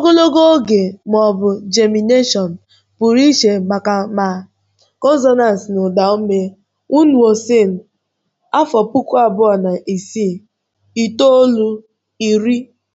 ogologo oge ma ọ bụ germination pụrụ iche maka ma consonants na ụda ume Wunwosen afọ puku abụọ na isii itoolu iri.